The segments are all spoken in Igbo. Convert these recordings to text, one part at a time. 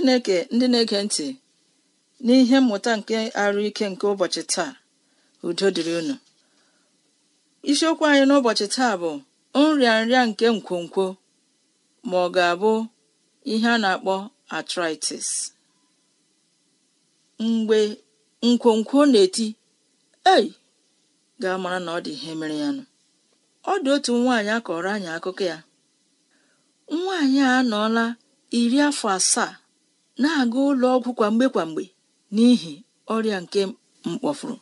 chineke ndị na-ege ntị n'ihe mmụta nke arụ ike nke ụbọchị taa udo dịrị unu isiokwu anyị n'ụbọchị taa bụ nrịanrịa nke nkwonkwo ma ọ ga-abụ ihe a na-akpọ arthritis mgbe nkwonkwo na-eti ei ga-amara na ọ dị ihe mere ya nụ ọ dị otu nwaanyị akọrọ anyị akụkọ ya nwaanyị a anọọla iri afọ asaa na-aga ụlọ ọgwụ kwa mgbe kwa mgbe n'ihi ọrịa nke mkpọfuru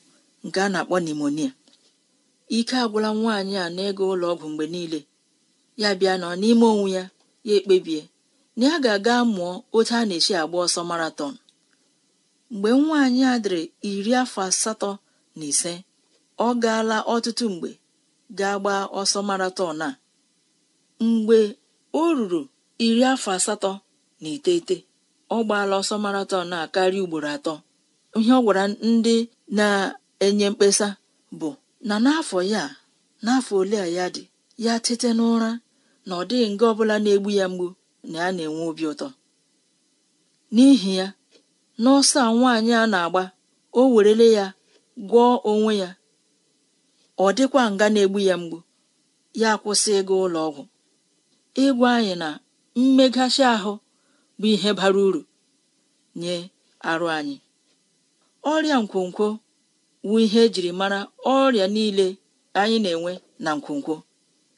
nke a na-akpọ nimonia ike agwụla nwaanyị a na ụlọọgwụ ụlọ ọgwụ mgbe niile ya bịa nọ n'ime onwe ya ya ekpebie na ya ga-aga mụọ otu a na echi agba ọsọ maraton mgbe nwaanyị a dịrị iri afọ asatọ na ise ọ gaala ọtụtụ mgbe gaa gbaa ọsọ maraton a mgbe o ruru iri afọ asatọ na iteghete ọ gbaala ọsọ maraton a karịa ugboro atọ ihe ọ gwara ndị na-enye mkpesa bụ na n'afọ ya n'afọ ole a ya dị ya tete n'ụra na ọ dịghị nga ọbụla na-egbu ya mgbu na ya na-enwe obi ụtọ n'ihi ya n'ọsọ a nwaanyị a na-agba o werele ya gwọọ onwe ya ọ dịkwa nga na-egbu ya mgbu ya kwụsị ịga ụlọ ọgwụ ịgwa anyị na mmeghachi ahụ bụ ihe bara uru nye arụ anyị ọrịa nkwonkwo bụ ihe ejiri mara ọrịa niile anyị na-enwe na nkwonkwo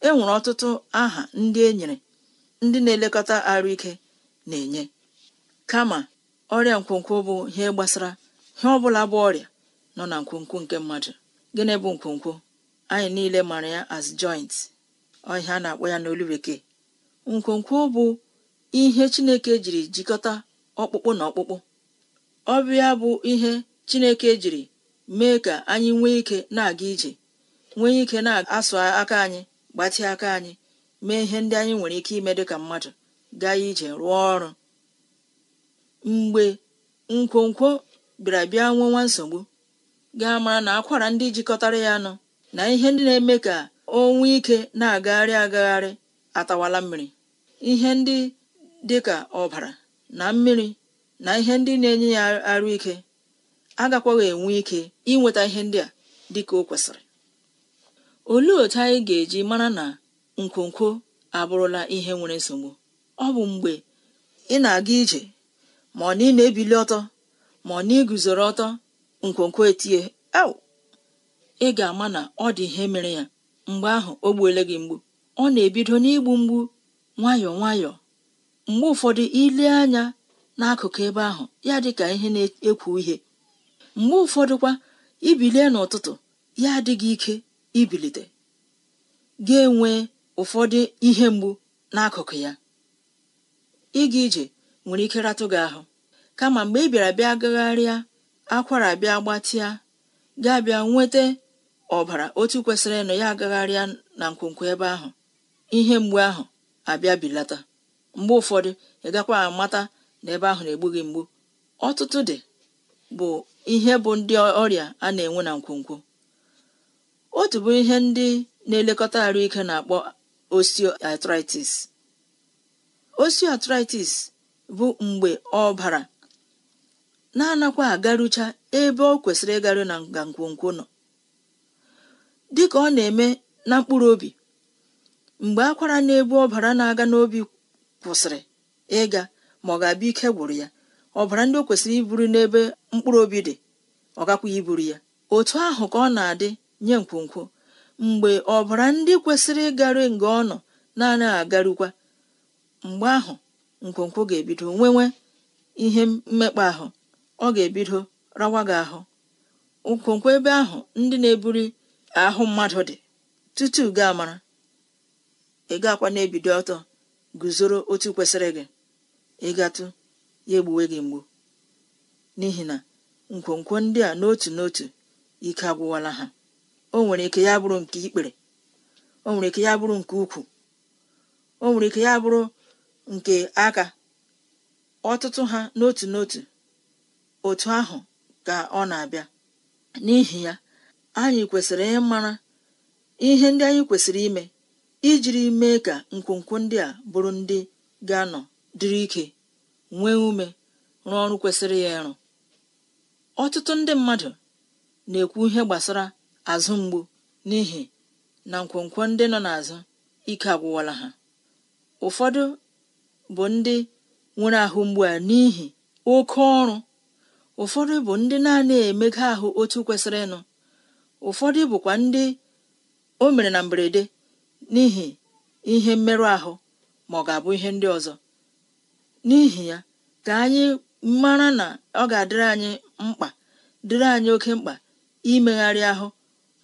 e nwere ọtụtụ aha ndị e nyere ndị na-elekọta arụ ike na-enye kama ọrịa nkwonkwo bụ ihe gbasara ihe ọbụla bụ ọrịa nọ na nkwonkwo nke mmadụ gịnị bụ nkwonkwo anyị niile mara ya as joint ọ na-akpọ ya n'olu bekee nkwonkwo bụ ihe chineke jiri jikọta ọkpụkpụ na ọkpụkpụ ọbịa bụ ihe chineke jiri mee ka anyị nwee ike na-aga ije nwee ike na-asụ aka anyị gbatị aka anyị mee ihe ndị anyị nwere ike ime dịka mmadụ gaa ije rụọ ọrụ mgbe nkwonkwo bịara bịa nwee nwa nsogbu gaa mara na akwara ndị jikọtara ya nọ na ihe ndị na-eme ka o nwee ike na-agagharị agagharị atawala mmiri ihe ndị dịka ọbara na mmiri na ihe ndị na-enye ya arụ ike agakwaghị enwe ike inweta ihe ndị a dịka o kwesịrị olee otu anyị ga-eji mara na nkwonkwo abụrụla ihe nwere nsogbu ọ bụ mgbe ị na-aga ije ma ọ na ị na-ebili ọtọ ma ọ na iguzoro ọtọ nkwonkwo etie au ị ga-ama na ọ dị ihe mere ya mgbe ahụ o gbuole gị mgbu ọ na-ebido n'igbu mgbu nwayọọ nwayọọ mgbe ụfọdụ ile anya n'akụkụ ebe ahụ ya dị ka ihe na-ekwu ihe mgbe ụfọdụkwa ibilie n'ụtụtụ ya adịghị ike ibilite ga-enwe ụfọdụ ihe mgbu n'akụkụ ya ịga ije nwere ike ratụ gị ahụ kama mgbe ị bịara bịa gagharịa akwara bịa gbatịa gaa bịa nweta ọbara otu kwesịrị ịnọ ya agagharịa na nkwonkwo ebe ahụ ihe mgbu ahụ abịa bilata mgbe ụfọdụ ị gakwa amata na ebe ahụ na-egbu gị mgbu ọtụtụ dị bụ ihe bụ ndị ọrịa a na-enwe na nkwonkwo otu bụ ihe ndị na-elekọta ike na-akpọ osteoarthritis osteoarthritis bụ mgbe ọbara na-anakwa agarucha ebe ọ kwesịrị ịgaru na nga nkwonkwo nọ dịka ọ na-eme na mkpụrụ obi mgbe akwara na-ebu ọbara na-aga n'obi kwụsịrị ịga ma ọ ga-abịa ike gwụrụ ya ọbara ndị o kwesịrị iburu n'ebe mkpụrụ obi dị ọ gakwaghị iburu ya otu ahụ ka ọ na-adị nye nkwonkwo mgbe ọbara ndị kwesịrị ịgaru nga ọ nọ na-anaghị agarukwa mgbe ahụ nkwonkwo ga-ebido nwewe ihe mmekpa ahụ ọ ga-ebido rawa gị ahụ nkwonkwo ebe ahụ ndị na-eburi ahụ mmadụ dị tutu gaa mara ị akwa na-ebido ọtọ guzoro otu kwesịrị gị ịgatụ ya egbuwe gị mgbu n'ihi na nkwonkwo ndị a n'otu n'otu ike agwụwala ha o nwere ike ya bụrụ nke ikpere o nwere ike ya bụrụ nke ukwu o nwere ike ya bụrụ nke aka ọtụtụ ha n'otu n'otu otu ahụ ka ọ na-abịa n'ihi ya anyị kwesịrị ịmara ihe ndị anyị kwesịrị ime ijiri mee ka nkwonkwo ndị a bụrụ ndị ga-anọ dịrị ike nwee ume rụọ ọrụ kwesịrị ya ịrụ ọtụtụ ndị mmadụ na-ekwu ihe gbasara azụ mgbu n'ihi na nkwonkwo ndị nọ n'azụ ike agwụwala ha ụfọdụ bụ ndị nwere ahụ mgbu a n'ihi oke ọrụ ụfọdụ bụ ndị na emega ahụ otu kwesịrị ịnụ ụfọdụ bụkwa ndị o mere na mberede n'ihi ihe mmerụ ahụ ma ọ ga-abụ ihe ndị ọzọ n'ihi ya ka anyị mara na ọ ga-adịrị anyị mkpa dịrị anyị oke mkpa imegharị ahụ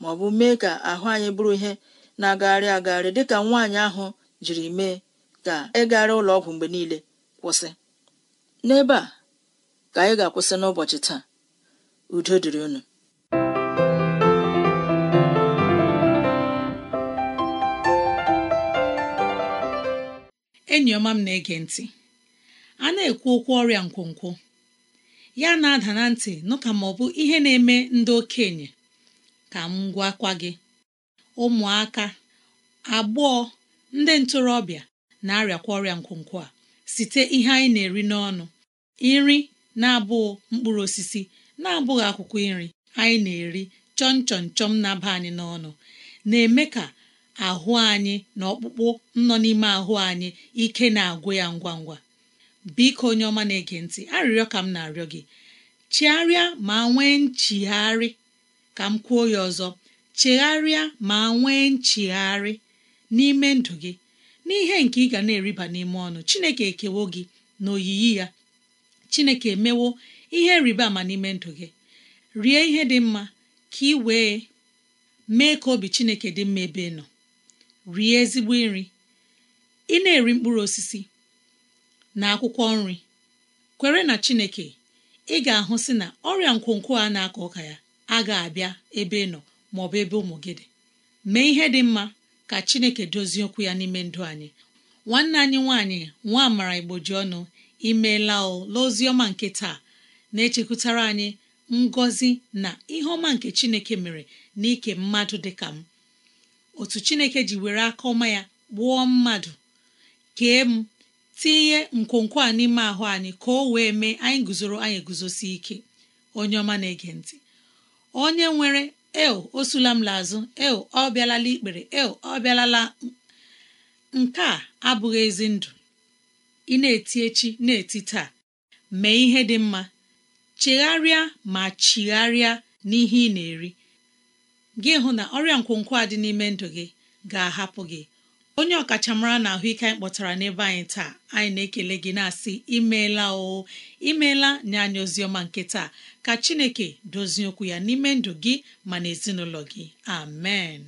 ma ọ bụ mee ka ahụ anyị bụrụ ihe na-agagharị agagharị ka nwaanyị ahụ jiri mee ka ịgagharị e ụlọ ọgwụ mgbe niile kwụsị n'ebe a ka anyị ga-akwụsị n'ụbọchị taa udo dịrị unu enyi ọma m na-ege ntị a na-ekwu okwu ọrịa nkwonkwo ya na-ada na ntị nụ ka ma ọ bụ ihe na-eme ndị okenye ka m gwakwa gị ụmụaka agbọọ ndị ntorobịa na-arịakwa ọrịa nkwonkwo a site ihe anyị na-eri n'ọnụ nri na-abụghị mkpụrụ osisi na-abụghị akwụkwọ nri anyị na-eri chọm chọm chọm na-aba anyị n'ọnụ na-eme ka ahụ anyị na ọkpụkpụ nọ n'ime ahụ anyị ike na-agwụ ya ngwa ngwa biko onye ọma na-ege ntị arịrịọ ka m na-arịọ gị chegharịa ma nwee nchigharị ka m kwuo ya ọzọ chegharịa ma nwee nchigharị n'ime ndụ gị n'ihe nke ị ga na-eriba n'ime ọnụ Chineke ekewo gị na oyiyi ya Chineke emewo ihe rịba ama n'ime ndụ gị rie ihe dị mma ka ị wee mee ka obi Chineke dị mma ebe ị nọ rie ezigbo nri ị na-eri mkpụrụ osisi na akwụkwọ nri kwere na chineke ị ga-ahụ si na ọrịa nkwonkwo a na-akọ ọka ya agaghị abịa ebe ị nọ ma ọ bụ ebe ụmụ gị dị mee ihe dị mma ka chineke dozie okwu ya n'ime ndụ anyị nwanne anyị nwaanyị nwa amara ji ọnụ imeela o nke taa na-echekwutara anyị ngọzi na ihe ọma nke chineke mere n'ike mmadụ dị ka m otu chineke ji were aka ọma ya gbuo mmadụ kee m tinye nkwonkwo a n'ime ahụ anyị ka o wee mee anyị guzoro anyị guzosi ike onye ọma na-ege ntị onye nwere eo o sulam m lazụ eo ọ bịalala ikpere eo ọ bịalala nke a abụghị ezi ndụ ị na-eti echi na-eti taa mee ihe dị mma chegharịa ma chigharịa n'ihe ị na-eri gị hụ na ọrịa nkwonkwo a dị n'ime ndụ gị ga-ahapụ gị onye ọkachamara na ahụike anyị kpọtara n'ebe anyị taa anyị na-ekele gị na-asị imeela o imeela nye anyị oziọma nke taa ka Chineke dozie okwu ya n'ime ndụ gị ma na ezinụlọ gị amen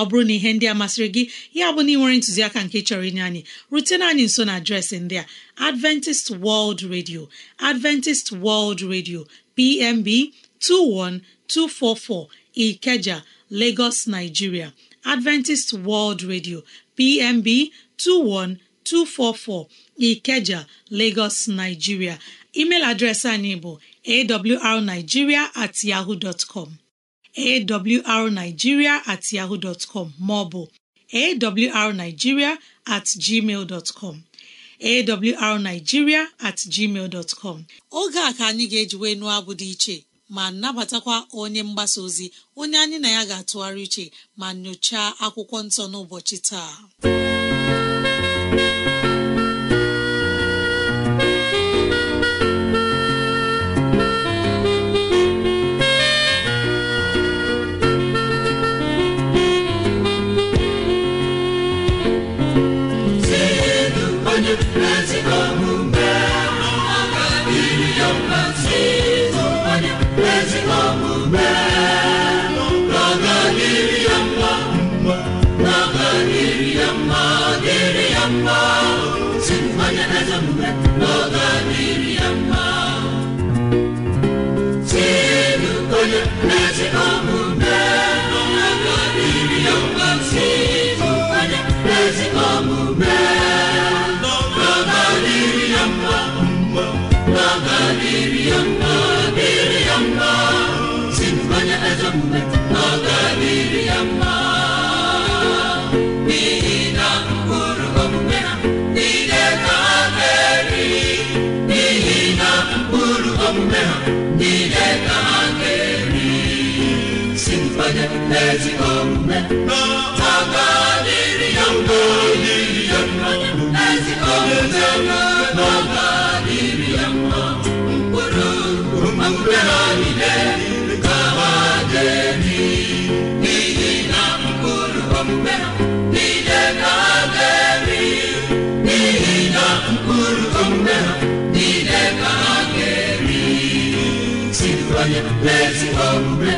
ọ bụrụ na ihe ndị a masịrị gị ya bụ na ị nwere ntụziaka nke chọrọ inye anyị rutena anyị nso na adreesị ndị a Adventist World Radio Adventist World Radio PMB 21244 Ikeja Lagos Nigeria Adventist World Radio PMB 21244 Ikeja Lagos Nigeria email adreesị anyị bụ awrnigeria at yahoo dot com awrnigeria at ọ bụ maọbụ awrnigeria oge a ka anyị ga-ejiwe nụọ abụ dị iche ma nabatakwa onye mgbasa ozi onye anyị na ya ga-atụgharị uche ma nyochaa akwụkwọ nsọ n'ụbọchị taa n'ezigbo omume n'ọgadịrị ya mma ya mma ezigbo omume ya mma mkpụrụ mkpụrụ mkpụrụ mkpụrụ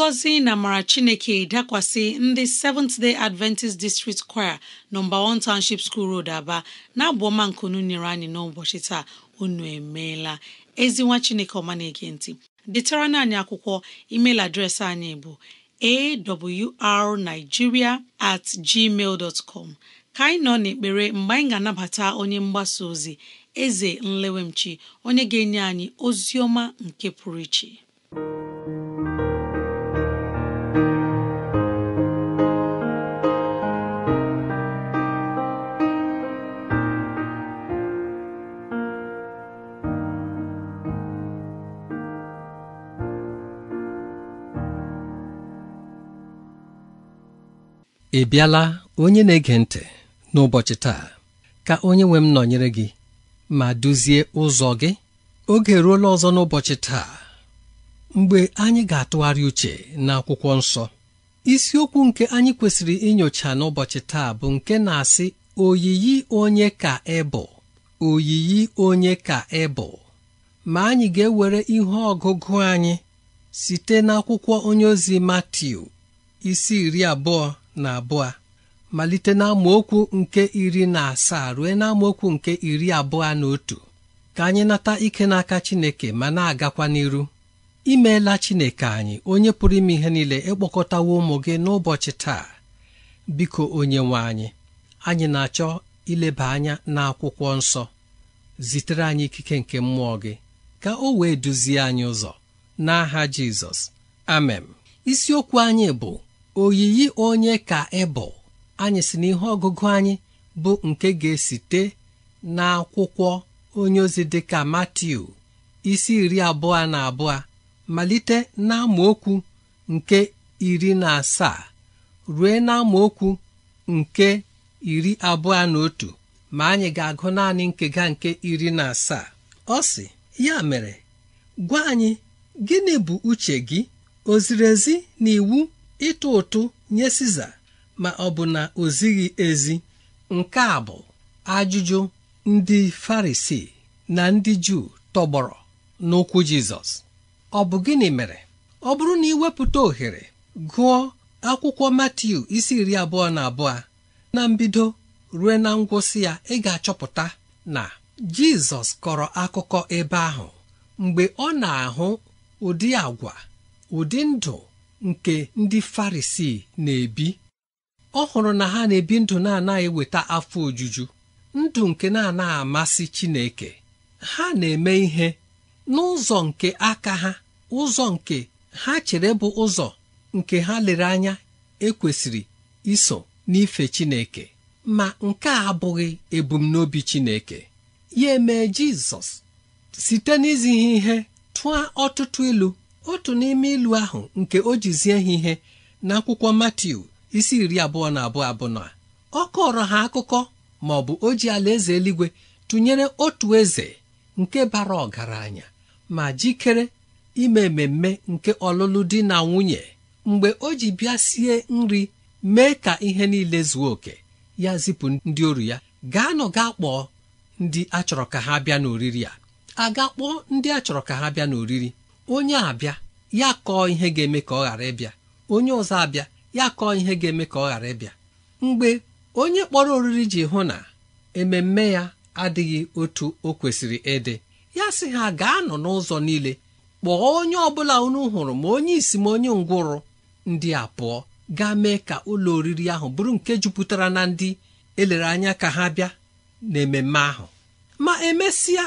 ngọzi na amara chineke dakwasị ndị Seventh Day Adventist District Choir nọmba 1 Township School Road Aba na-abụ ọma nkunu nyere anyị n'ụbọchị taa unu emeela ezi nwa chineke ọma na-ege detara anyị akwụkwọ email adreesị anyị bụ awrnigeria at gmail dot com ka anyị nọ n'ekpere mgbe anyị ga-anabata onye mgbasa ozi eze nlewemchi onye ga-enye anyị ozi ọma nke pụrụ iche ị bịala onye na-ege ntị n'ụbọchị taa ka onye nwe m nọnyere gị ma duzie ụzọ gị oge ruola ọzọ n'ụbọchị taa mgbe anyị ga-atụgharị uche na akwụkwọ nsọ isiokwu nke anyị kwesịrị inyocha n'ụbọchị taa bụ nke na-asị oyiyi onye ka ị oyiyi onye ka ị ma anyị ga-ewere ihe ọgụgụ anyị site n'akwụkwọ onye ozi Matiu isi iri abụọ na abụọ malite na amaokwu nke iri na asaa ruo na amaokwu nke iri abụọ na otu ka anyị nata ike n'aka Chineke ma na-agakwa n'iru imeela Chineke anyị onye pụrụ ime ihe niile ịkpọkọtawo ụmụ gị n'ụbọchị taa biko onye nwe anyị anyị na-achọ ileba anya n'akwụkwọ nsọ zitere anyị ikike nke mmụọ gị ka o wee duzie anyị ụzọ n'aha Jizọs amen isiokwu anyị bụ oyiyi onye ka ị e anyị si n'ihe ọgụgụ anyị bụ nke ga-esite n'akwụkwọ onye ozi dịka Matiu isi iri abụọ na abụọ malite n'amaokwu nke iri na asaa rue n'amaokwu nke iri abụọ na otu ma anyị ga-agụ naanị nkega nke iri na asaa ọ sị ya mere gwa anyị gịnị bụ uche gị o ziri ezi na iwu ịtụ ụtụ nye siza ma ọ bụ na o zighị ezi nke a bụ ajụjụ ndị farisi na ndị juu tọgbọrọ n'ụkwụ jizọs ọ bụ gịnị mere ọ bụrụ na iwepụta ohere gụọ akwụkwọ Matiu isi iri abụọ na abụọ na mbido ruo na ngwụsị ya ị ga-achọpụta na jizọs kọrọ akụkọ ebe ahụ mgbe ọ na-ahụ ụdị agwa ụdị ndụ nke ndị Farisii na-ebi ọ hụrụ na ha na-ebi ndụ na-anaghị weta afọ ojuju ndụ nke na-anaghị amasị Chineke ha na-eme ihe n'ụzọ nke aka ha ụzọ nke ha chere bụ ụzọ nke ha lere anya ekwesịrị iso n'ife Chineke ma nke a abụghị ebumnobi Chineke ya emee Jizọs site n'izi ihe tụọ ọtụtụ ilu otu n'ime ilu ahụ nke o jizie ha ihe akwụkwọ Matiu isi iri abụọ na abụọ abụọ ọ kọrọ ha akụkọ ma ọ bụ oji ala alaeze eluigwe tụnyere otu eze nke bara ọgaranya ma jikere ime mmemme nke ọlụlụ di na nwunye mgbe o ji bịa sie nri mee ka ihe niile zuo oke ya zipụ ndị oru ya gaanụ gaa kpọọ ndị achọrọ ka ha bịa n'oriri a a ga kpọọ ndị achọrọ ka ha bịa n'oriri onye abịa ya kọọ ihe ga-eme ka ọ ghara ịbịa onye ọzọ abịa ya kọọ ihe ga-eme ka ọ ghara ịbịa mgbe onye kpọrọ oriri ji hụ na ememme ya adịghị otu o kwesịrị ịdị ya sị ha gaa nọ n'ụzọ niile kpọọ onye ọbụla unu hụrụ ma onye isi ma onye ngwụrụ ndị a pụọ gaa mee ka ụlọ oriri ahụ bụrụ nke jupụtara na ndị elere anya ka ha bịa ememme ahụ ma emesịa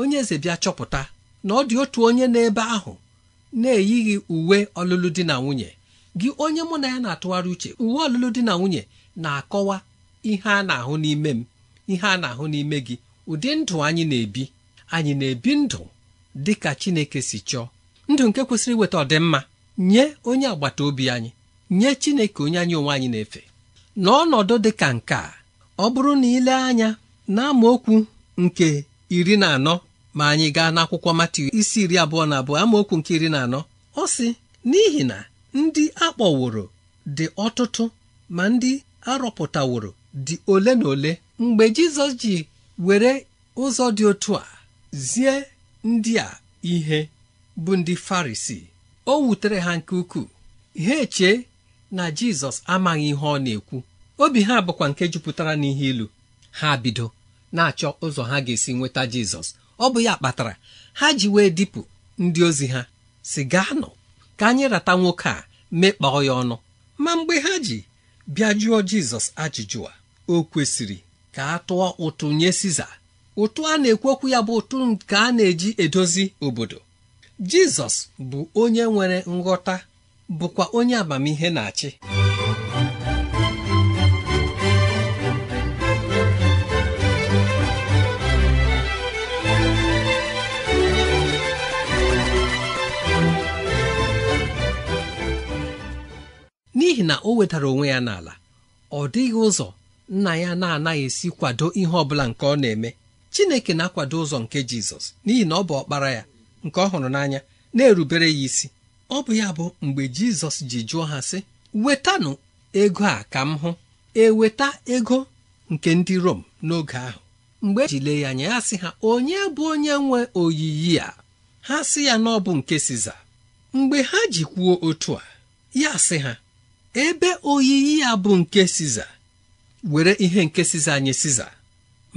onye eze bịa chọpụta na ọ dị otu onye n'ebe ahụ na-eyighị uwe ọlụlụ di na nwunye gị onye mụ na ya na-atụgharị uche uwe ọlụlụ di na nwunye na-akọwa ihe a na-ahụ n'ime m ihe a na-ahụ n'ime gị ụdị ndụ anyị na-ebi anyị na-ebi ndụ dị ka Chineke si chọọ ndụ nke kwesịrị iweta ọdịmma nye onye agbata obi anyị nye Chineke onye anyị onwe anyị na-efe n'ọnọdụ dị ka nke a ọ bụrụ na ile anya na okwu nke iri na anọ ma anyị gaa n'akwụkwọ akwụkwọ isi iri abụọ na abụọ amaokwu nke iri na anọ ọ sị n'ihi na ndị akpọworo dị ọtụtụ ma ndị arọpụtaworo dị ole na ole mgbe Jizọs ji were ụzọ dị otu a zie ndị a ihe bụ ndị Farisi o wutere ha nke ukwuu ha echee na Jizọs amaghị ihe ọ na-ekwu obi ha bụkwa nke jupụtara n'ihe ilu ha bido na-achọ ụzọ ha ga-esi nweta Jizọs ọ bụ ya kpatara ha ji wee dipụ ndị ozi ha si gaa nọ ka anyị rata nwoke a mekpọọ ya ọnụ ma mgbe ha ji bịa jụọ jizọs ajụjụ a o kwesịrị ka a tụọ ụtụ nye siza ụtụ a na-ekwekwu ya bụ ụtụ nke a na-eji edozi obodo jizọs bụ onye nwere nghọta bụkwa onye amamihe na-achị n'ihi na o wetara onwe ya n'ala ọ dịghị ụzọ nna ya na-anaghị esi kwado ihe ọbụla nke ọ na-eme Chineke na-akwado ụzọ nke Jizọs n'ihi na ọ bụ ọkpara ya nke ọ hụrụ n'anya na-erubere ya isi ọ bụ ya bụ mgbe Jizọs ji jụọ ha sị wetanụ ego a ka m hụ eweta ego nke ndị Rom n'oge ahụ mgbe ejile ya anya ya sị ha onye bụ onye nwe oyiyi a ha sị ya na ọ bụ nke Siza mgbe ha ji kwuo otu a ya sị ha ebe oyiyi ya bụ nke siza were ihe nke siza nye siza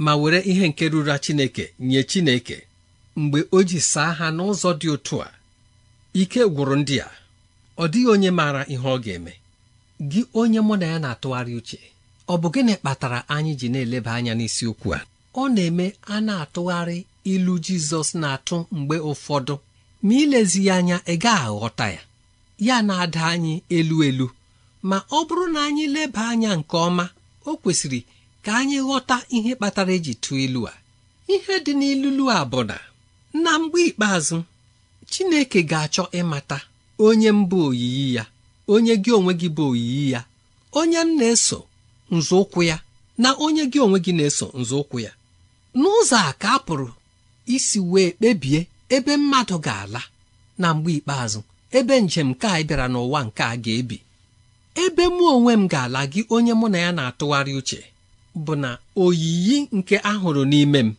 ma were ihe nke ruru chineke nye chineke mgbe o ji saa ha n'ụzọ dị otu a ike gwụrụ ndị a ọ dịghị onye maara ihe ọ ga-eme gị onye mụ na ya na-atụgharị uche ọ bụ gịnị kpatara anyị ji na-eleba anya n'isiokwu a ọ na-eme a na-atụgharị ilu Jizọs na-atụ mgbe ụfọdụ ma ilezi ya anya ị gaghị aghọta ya ya na-ada anyị elu elu ma ọ bụrụ na anyị leba anya nke ọma o kwesịrị ka anyị ghọta ihe kpatara eji tụọ ilu a ihe dị n'ilulu a bụ na na mgbe ikpeazụ Chineke ga-achọ ịmata onye m oyiyi ya onye gị onwe gị bụ oyiyi ya onye m na-eso nzọụkwụ ya na onye gị onwe gị na-eso nzọụkwụ ya n'ụzọ a ka a pụrụ isi wee kpebie ebe mmadụ ga-ala na mgbe ikpeazụ ebe njem nke a bịara n'ụwa nke a ga-ebi ebe mụ onwe m ga-ala gị onye mụ na ya na-atụgharị uche bụ na oyiyi nke ahụrụ n'ime m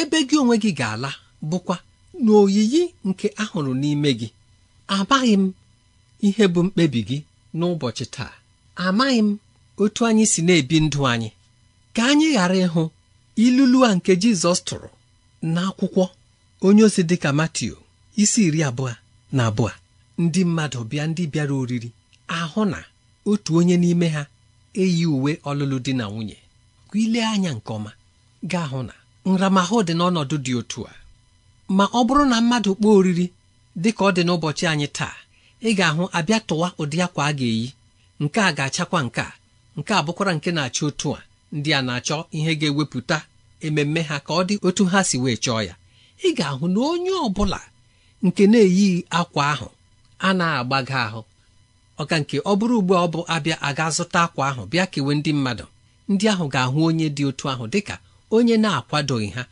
ebe gị onwe gị ga-ala bụkwa na oyiyi nke ahụrụ n'ime gị amaghị m ihe bụ mkpebi gị n'ụbọchị taa amaghị m otu anyị si na-ebi ndụ anyị ka anyị ghara ịhụ ilulu a nke Jizọs tụrụ n'akwụkwọ onye ozi dịka Matiu isi iri abụọ na abụọ ndị mmadụ bịa ndị bịara oriri ahụ na otu onye n'ime ha eyi uwe ọlụlụ di na nwunye ka ile anya nke ọma ga na nramahụ dị n'ọnọdụ dị otu a ma ọ bụrụ na mmadụ kpọọ oriri dị ka ọ dị n'ụbọchị anyị taa ị ga-ahụ abịa tụwa ụdị akwa a ga-eyi nke a ga-achakwa nke a nke a bụkwara nke na-achọ otu a ndị a na-achọ ihe ga-ewepụta ememme ha ka ọ dị otu ha si wee chọọ ya ị ga-ahụ na onye ọ bụla nke na-eyighị akwa ahụ a na-agbaga ahụ ọka nke ọ bụrụ ugbu ọ bụ abịa aga zụta akwa ahụ bịa kewe ndị mmadụ ndị ahụ ga-ahụ onye dị otu ahụ dịka onye na-akwadoghị ha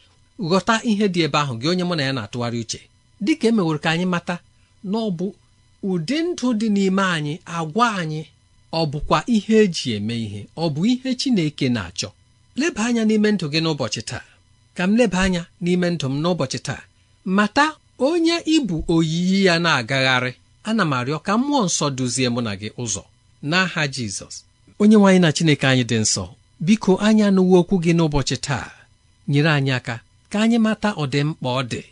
ghọta ihe dị ebe ahụ gị onye mụ na ya na-atụgharị uche dịka emeworo ka anyị mata na ọ bụ ụdị ndụ dị n'ime anyị agwa anyị ọ bụkwa ihe eji eme ihe ọ bụ ihe Chineke na-achọ leba anya n'ime ndụ gị n'ụbọchị taa ka m leba anya n'ime ndụ m n'ụbọchị taa mata onye ịbụ oyiyi ya na-agagharị ana m arịọ ka mmụọ nsọ duzie mụ na gị ụzọ n'aha jizọs onye nwaanyị na chineke anyị dị nsọ biko anya anụwo okwu gị n'ụbọchị taa nyere anyị aka ka anyị mata ọdịmkpa ọ dị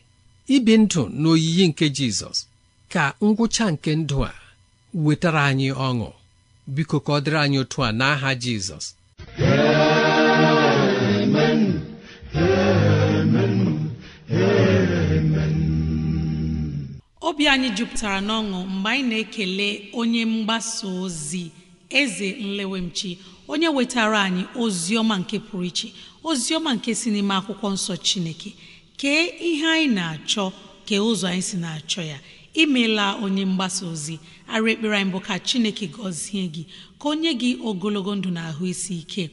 ibi ndụ n'oyiyi nke jizọs ka ngwụcha nke ndụ a wetara anyị ọṅụ biko ka ọ dịrị anyị otu a n'aha jizọs obi anyị jupụtara n'ọṅụ mgbe anyị na-ekele onye mgbasa ozi eze nlewemchi onye wetara anyị ozi ọma nke pụrụ iche ozi ọma nke si n'ime akwụkwọ nsọ chineke kee ihe anyị na-achọ kee ụzọ anyị si na-achọ ya imela onye mgbasa ozi arụ ekpere anyị bụ ka chineke gọzie gị ka o nye gị ogologo ndụ na ahụ isi ike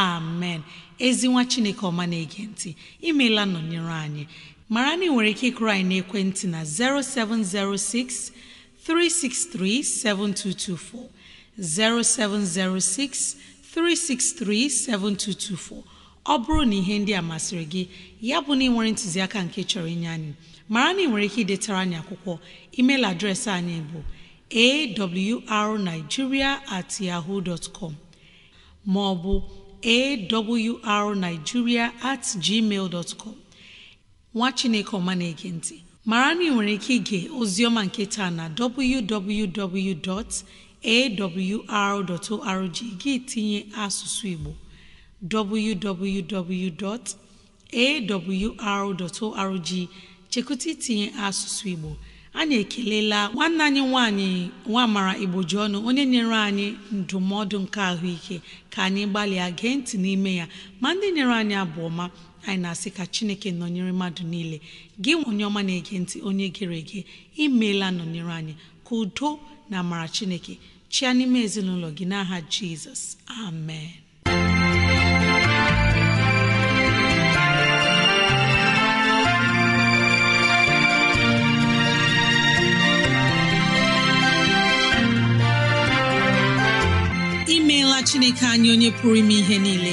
amen ezinwa chineke ọma na-ege ntị imela nọnyere anyị mara na ị nwere ike ịkụrụ anyị n'ekwentị na 0706 363 7224 0706 363 7224 ọ bụrụ na ihe ndị a masịrị gị ya bụ na ị nwere ntụziaka nke chọrọ inye anyị mara na ị nwere ike idetara anyị akwụkwọ email adreesị anyị bụ awrnigeria at yahoo dot com ma ọ bụ awrnigeria at gmail dot com nwa chineke ọma na-ege ntị mara na ị nwere ike ige oziọma nke taa na www.awr.org gị tinye asụsụ igbo www.awr.org chekụta itinye asụsụ igbo anyị ekelela nwanne anyị nwanyị nwamara igboji ọnụ onye nyere anyị ndụmọdụ nke ahụike ka anyị gbalịa gee ntị n'ime ya ma ndị nyere anyị abụ ọma anyị na-asị ka chineke nọnyere mmadụ niile gị onye ọma na-ege ntị onye gere ege imeela nọnyere anyị ka udo na amara chineke chịa n'ime ezinụlọ gị n'aha jizọs amen imeela chineke anyị onye pụrụ ime ihe niile